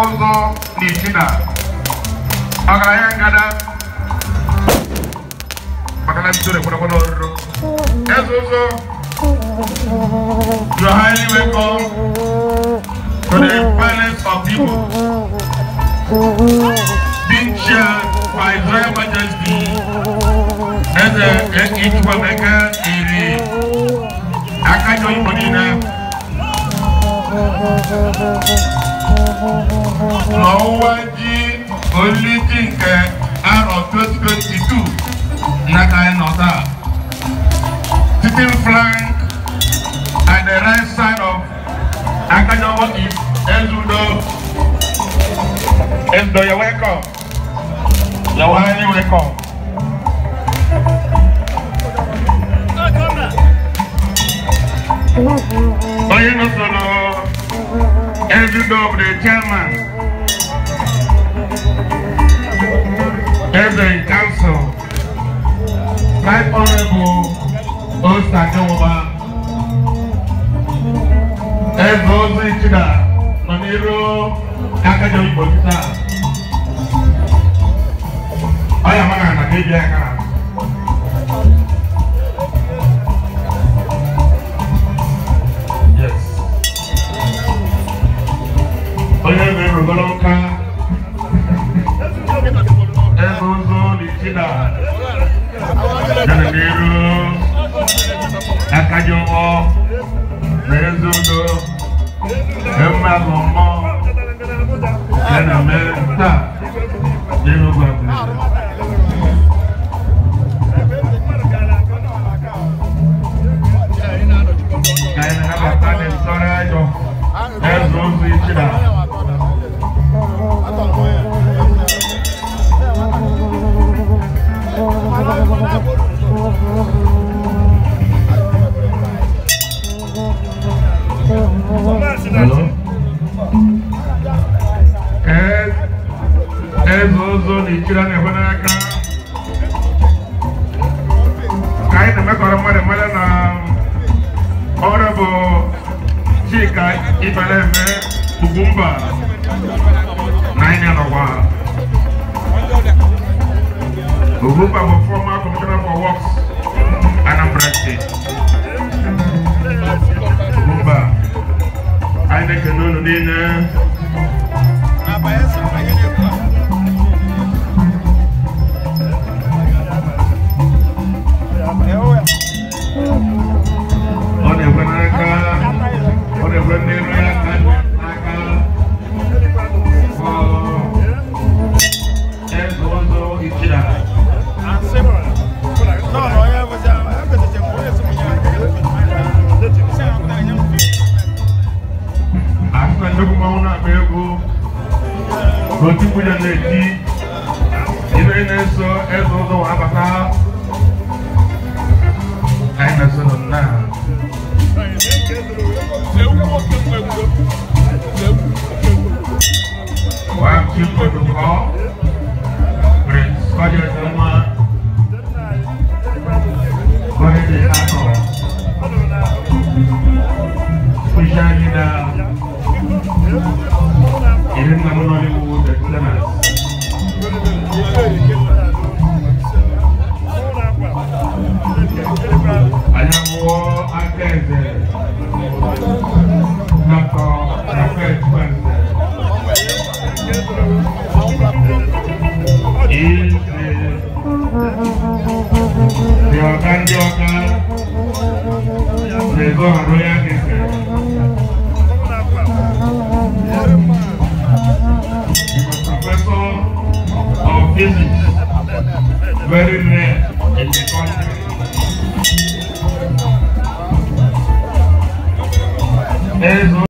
ọzọ n'Ichida ọgaranya ngada maka na bido ekwerekwere ọrụrụ eze ụzọ to highly welcome to the parents of Igbo being chaired by His Royal Majesty Eze Ichwameka Iri Akajọ Igbo niile Mawuwaji olùdí nke arọ 2022 n'aka anyị nọ taa. Sitting flank at the right side of Akajobo is Ezudo. Ezudo, you're welcome. You're welcome. president of the chairman, President Council, Right Honorable Osadewoba, Ezozi Chida, Maniro Kakajomi Botita, Oyamana Nakebi Akara. eguzu litila janamiru akajowo na ezudo emagumo janameta ez ụzọ na-echiri a na n'aka ka anyị na-emekọrọ mmadụ mmadụ na ọrụ bụ chika ibereme ugwumba na anyị nọkwa ugwumba bụ former commissioner for works anambra state ugwumba anyị na-ekene unu niile otukwu ya na-eti ibe na-eso eze ụzọ wee anyị na-eso nna wàá kí pẹ̀lú kọ́ pẹ̀lú They professor of physics, very rare in the country.